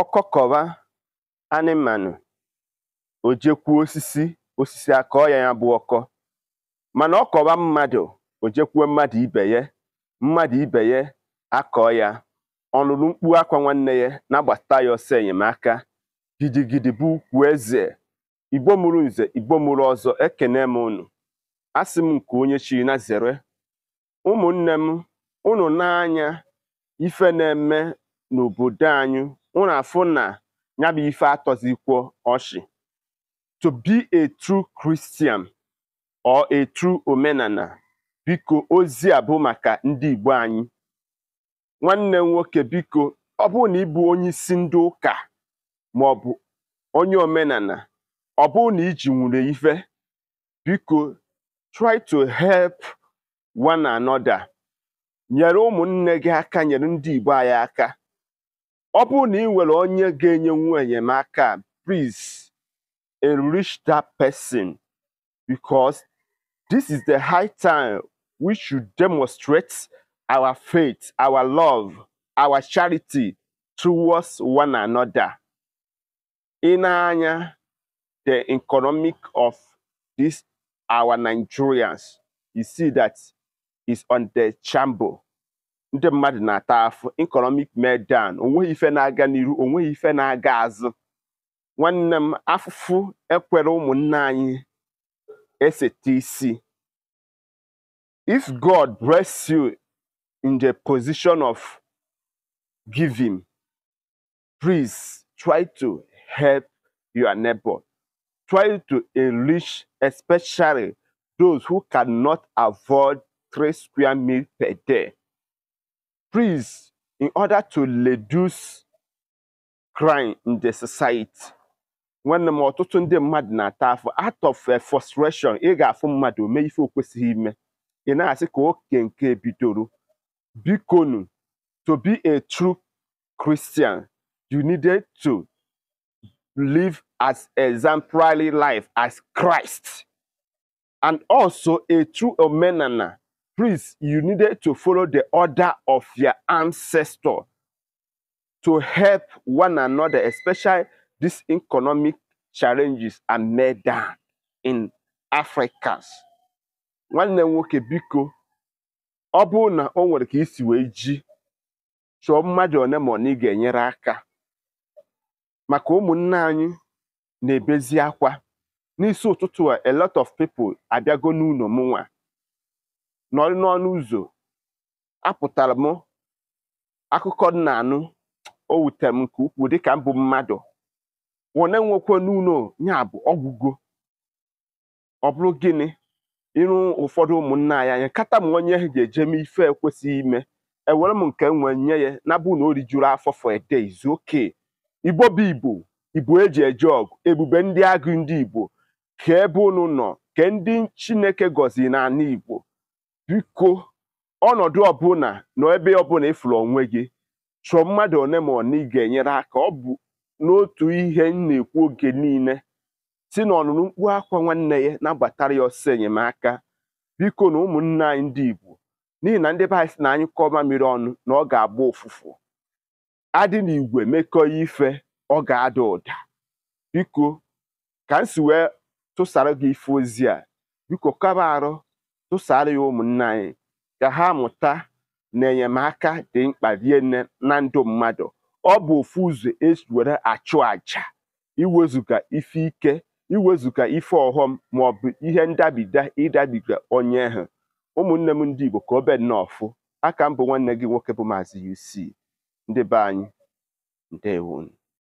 ọkọkọ̀wa anịmanụ̀ ò jekwuo osisi osisi akọọ ya ya bụ ọkọ mana ọ mmadụ mmadụ̀ o jekwuo mmadụ ibe ye mmadụ ibe ya akọọ ya ọlụlụ mkpu akwa nwanne ya na-agbata ya ọsọ enyemaka gidigidi bụ ukwu eze igbo mụrụ nze igbo mụrụ ọzọ ekene m unu asị m nke onye chi na zere ụmụnne m unu n'anya ife na-eme n'obodo anyị unu na ya bụ ife atọzikwo ọchị to be a true Christian or a true omenala biko ozi a bụ maka ndị Igbo anyị nwanne nwoke biko ọ bụ na ị bụ onye isi ndị ụka ma ọ bụ onye omenala ọ bụ na iji nwere ife biko try to help one another nyere ụmụnne gị aka nyere ndị Igbo anyị aka ọ bụrụ na ị nwere onye ga-enye nwa enyemaka please enrich that person because this is the high time we should demonstrate our faith our love our charity towards one another. ị anya the economic of this our Nigerians you see that is on the chamber ndị mmadụ na-ata afụ economic meltdown onweghị ife na-aga n'iru onweghị ife na-aga azụ nwanne m afụfụ ekwere ụmụnne anyị eseta isi if God bless you in the position of giving, please try to help your neighbor. Try to enrich especially those who cannot afford three square meals per day. priests in order to reduce crime in the society when the ọtụtụ ndị mmadụ out of eh, frustration ị ga-afụ mmadụ mee ife o kwesịghị ime i to be a true Christian you needed to live as exemplary life as Christ and also a true omenana priest, you needed to follow the order of your ancestor to help one another, especially these economic challenges are made down in africa. nwanne m nwoke biko ọ bụrụ na o nwere ka isi wee ji chọọ mmadụ one ma na ị ga-enyere aka maka ụmụnne anyị na-ebezi akwa n'isi ụtụtụ a lot of people abịago n'ụlọ mụnwa nọrị n'ọnụ ụzọ apụtara m akụkọ nna anụ o wutere m nke ukwuu dịka mbụ mmadụ wone nwekwe n'ụlọ ya bụ ọgwụgo ọ bụrụ gịnị irụ ụfọdụ ụmụnna anyị anya kata m onye ga-eje m ife ekwesịghị ime ewere m nke nwe nye ya na bụ na o rijuru afọ for a day is igbo bụ igbo igbo eji eje ọgụ ebube ndị agụ ndị igbo ka ebe unu nọ ke ndị chineke gọziri n'ala igbo biko ọnọdụ ọbụla na ebe ọbụla ịfụrụ onwe gị chọọ mmadụ one ma ị ga-enyere aka ọ bụ n'otu ihe m na-ekwu oge niile si na ọnụnụ mkpu akwa nwanne ya na-agbatara ya ọsọ enyemaka biko na ụmụnne anyị ndị Igbo n'ihi na ndị be na anyị kọọ mmiri ọnụ na ọ ga-agba ụfụfụ adị na igwe mekọ ife ọ ga-ada ụda biko ka m si wee tụsara gị ife ozi a biko kaba arụ tụsara ya ụmụnne anyị ka ha mụta na enyemaka dị mkpa nne na ndụ mmadụ ọ bụ ofu ụzọ esi were achụ aja iwezuga ife ike iwezuga ife ọghọm maọbụ ihe ndabida ịdabiga onye ha ụmụnne m ndị Igbo ka obe nnọọ fụ aka m bụ nwanne gị nwoke bụ Maazị UC ndị be anyị ndewonu